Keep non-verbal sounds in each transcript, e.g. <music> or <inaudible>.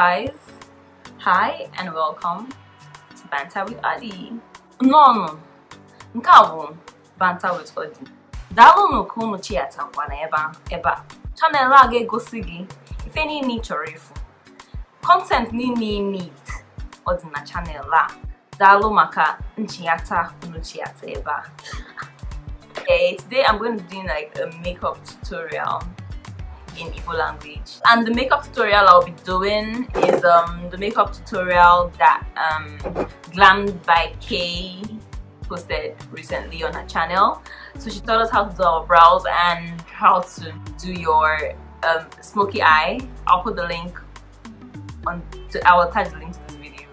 guys! Hi and welcome to Banta with Adi. Nnọọnụ, nke a bụ with Adi. Dalo ka unu chiatakwa na ebe a. Chanel a ga-egosi gị ife niile ị chọrọ Content ni ni need ọ dị na chanel a. Daalụ maka nchiata unu chiata ebe Okay, today I'm going to do like a makeup tutorial in Igbo language. And the makeup tutorial I'll be doing is um, the makeup tutorial that um, Glammed by Kay posted recently on her channel. So she taught us how to do our brows and how to do your um, smoky eye. I'll put the link on, to, I will attach the link to this video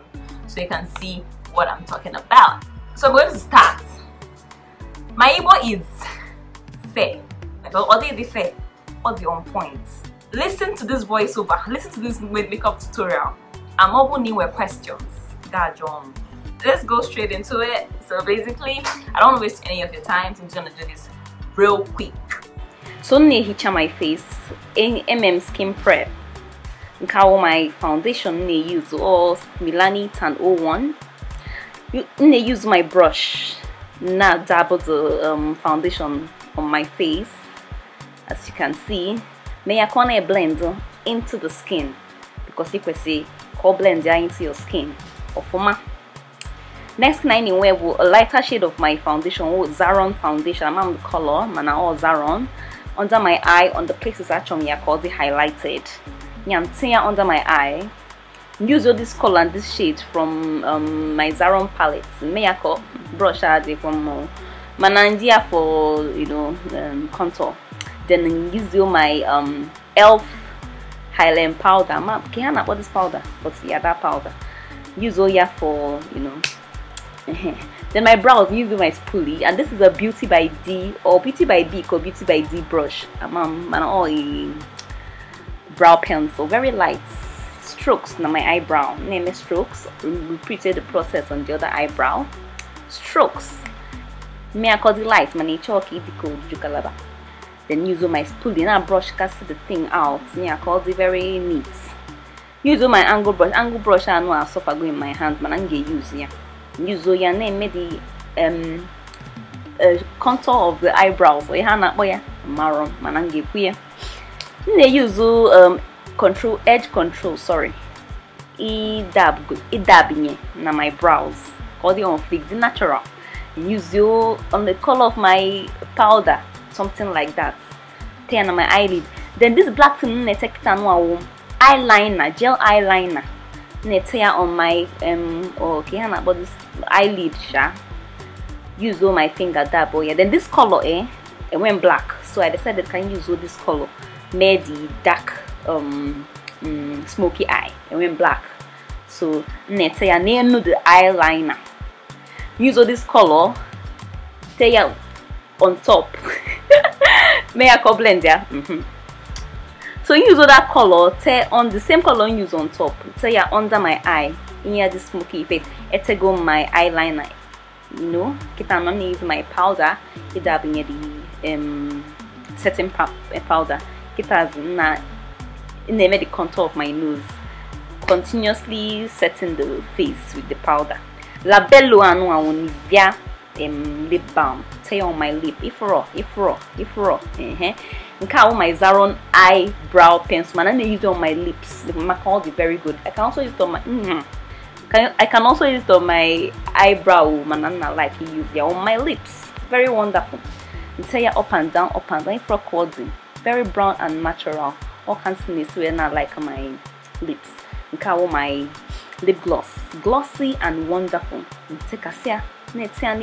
so you can see what I'm talking about. So I'm going to start. My Igbo is fe. I don't say or the on point. Listen to this voiceover, listen to this makeup tutorial. I'm open new questions. God, Let's go straight into it. So basically, I don't waste any of your time, so I'm just gonna do this real quick. So I'm gonna hit my face in MM Skin Prep. nke my foundation m use all Milani Tan 01 You na use my brush Now dabble the um, foundation on my face as you can see maya ya kona e blend into the skin because see ko blend into your skin ofuma next na ni wewe a lighter shade of my foundation wo Zaron foundation I'm on the color mana all Zaron under my eye on the places achom ya ko highlighted nyam under my eye use all this color and this shade from um, my Zaron palette Maya ko brush add from uh, mana for you know um, contour then use my um, e.l.f. Highland powder. Ma, can I bought this powder? But yeah, that powder. Use all Oya for, you know. <laughs> then my brows, use my spoolie. And this is a Beauty by D or Beauty by B or Beauty by D brush. Um, um, and all a brow pencil. Very light strokes on my eyebrow. Name strokes. Repeated the process on the other eyebrow. Strokes. Me, I call the light. My chalky okay, the cold, then use my spoolie and brush cast the thing out. Yeah, called it very neat. Use my angle brush. Angle brush I know I suffer go in my hand, man. I'm gonna use yeah. Use your name maybe um uh, contour of the eyebrows. Oh yeah, na oh yeah, maroon. Man, I'm gonna use um control edge control. Sorry, e dab go e dab na my brows. Call the on fix the natural. Use you on the color of my powder something like that ten on my eyelid then this black thing na-etepụta nwa eyeliner gel eyeliner Tear on my um or oh, ka but this eyelid sha use all my finger that boy. yeah then this color eh it went black so i decided can use all this color Medi dark um, mm, smoky eye it went black so nete ya nenu the eyeliner use all this color Tear on top <laughs> miracle blend yeah mm -hmm. so use other color tear on the same color you use on top tear yeah, under my eye In here, the smoky face go my eyeliner you know kita i'm gonna use my powder either being the um setting eh, powder kita na in the contour of my nose continuously setting the face with the powder labello anu awon nivea um, lip balm tee on my lip If raw, if raw, if raw. nke a bụ my zaron eyebrow brow pencil mana na use it on my lips maka all the very good i can also use it on my mm -hmm. can, i can also use it on my eyebrow mana nna like use it on my lips very wonderful nte ya up and down up and down ifro coding very brown and natural all kinds of this way na like my lips And a my lip gloss glossy and wonderful take a see. na-etinye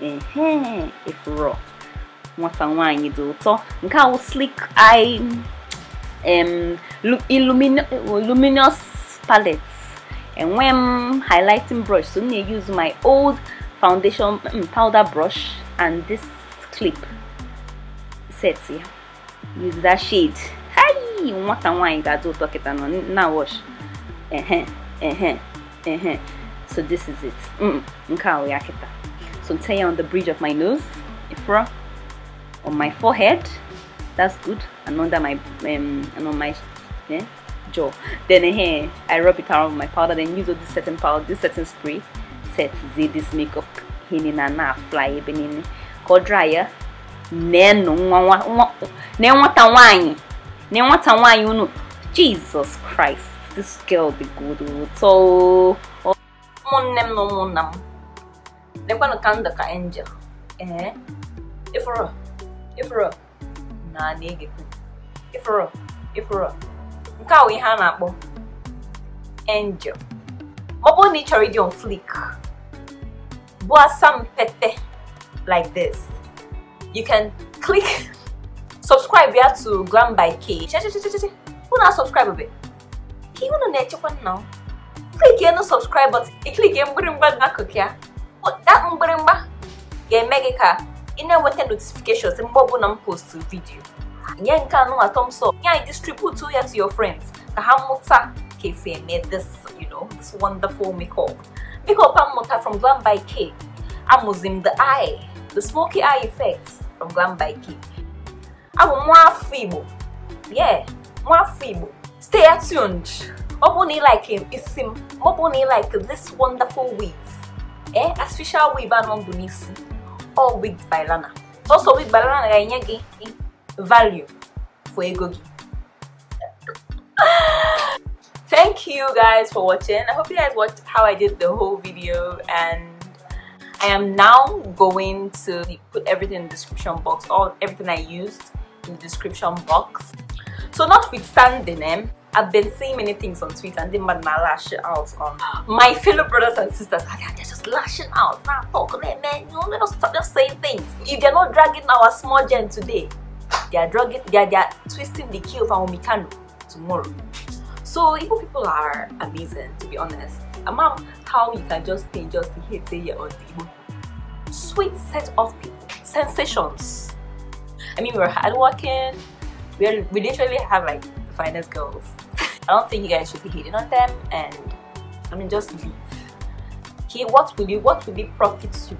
n'ime ya efuro nwata nwanyị dị ụtọ nke awụ slick eye luminous palette enwe m highlighting brush so m na-use my old foundation mm, powder brush and this clip set ya use that shade nwata nwanyị ga-adị ụtọ kịta nọ na wash ehe ehe ehe so this is it mm nke a ya kita so tie on the bridge of my nose ifra on my forehead that's good and under my um and on my yeah, jaw then here eh, i rub it around with my powder then use this certain powder this certain spray set z this makeup hini na na apply ebe eh, niile eh. dryer. ọ dry ya nenụ nne nwata nwanyị nne nwata jesus christ this girl the good oh, so ụmụnne m eh? na ụmụnna m lekwanụ ka ndụ ka angel ee ịfụrụ ịfụrụ na na-egekwu ịfụrụ ịfụrụ nke a bụ ihe a na-akpọ angel ma ọ bụrụ na ị chọrọ on flick bụ asampete like this you can click <laughs> subscribe ya to Glam by Kay unu a subscribe be 'Ki ihe unu na-echekwa nna ụ klikie na subscribe button iklikie mgbịrịmgba ga-akụkịa that mgbịrịmgba ga-eme gị ka ị na-enweta notifications mgbe ọbụla m post vidio nye nke anụnwa thumbs up nye anyị distribute ya to your friends ka ha mụta ka esi eme this you know this wonderful makeup makeup a mmụta from Glam by K amụzi the eye the smoky eye effect from Glam by K abụ nwa afọ Igbo yeah nwa afọ Igbo stay tuned Mopuni like him is sim. Mopuni like this wonderful weave. Eh, artificial weave and on bunisi. All wigs by Lana. Also wig by Lana ganyagi value for a gogi. Thank you guys for watching. I hope you guys watched how I did the whole video and I am now going to put everything in the description box, all everything I used in the description box. So notwithstanding, name. Eh, I've been seeing many things on Twitter and they man now lash out on my fellow brothers and sisters. They're just lashing out. Now talk, man, man. You know, stop just saying things. If they're not dragging our small gen today, they are dragging, they are, they are twisting the key of our mechano tomorrow. So Igbo people are amazing, to be honest. A mom, how you can just stay just to hate say on the Sweet set of people, sensations. I mean, we are hardworking. We, are, we literally have like Finest girls. I don't think you guys should be hating on them and I mean just leave. Okay, what will you what will it profit you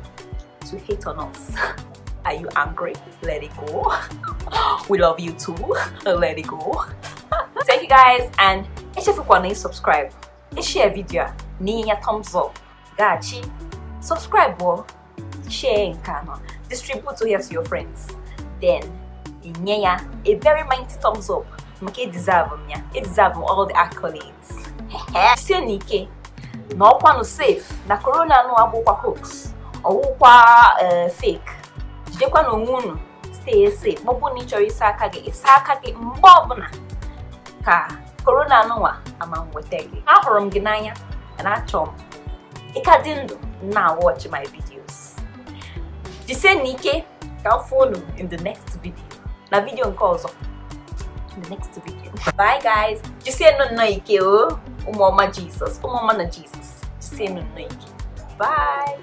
to hate on us? <laughs> Are you angry? Let it go. <laughs> we love you too. <laughs> Let it go. Thank you guys and if you want to subscribe. Share video. Ni thumbs up. Gachi. Subscribe or oh. share nkano. Distribute to here to your friends. Then, a very mighty thumbs up. maka deserve m ya edizav m all the accolades sie n'ike na ọkwanụ safe na corona nụ abụkwa hoax ọwụkwa eh, fake jidekwa na onwe unu stay safe ma ọ bụrụ na ị ịsa aka gị ịsa aka gị mgbe ọbụla ka korona nụnwa ama nweta gị ahụrụ m gị n'anya na achọ m ịka dị ndụ na watch my videos jisie ike ka m fụ unu in the next video na vidio nke ọzọ the next video. Bye guys. Just say no noike oh. Umama Jesus. Umama na Jesus. Just say no noike. Bye.